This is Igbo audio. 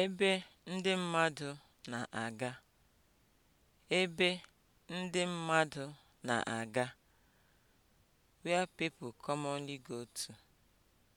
ebe ndị mmadụ na-aga ebe ndị mmadụ na-aga (where people commonly go to)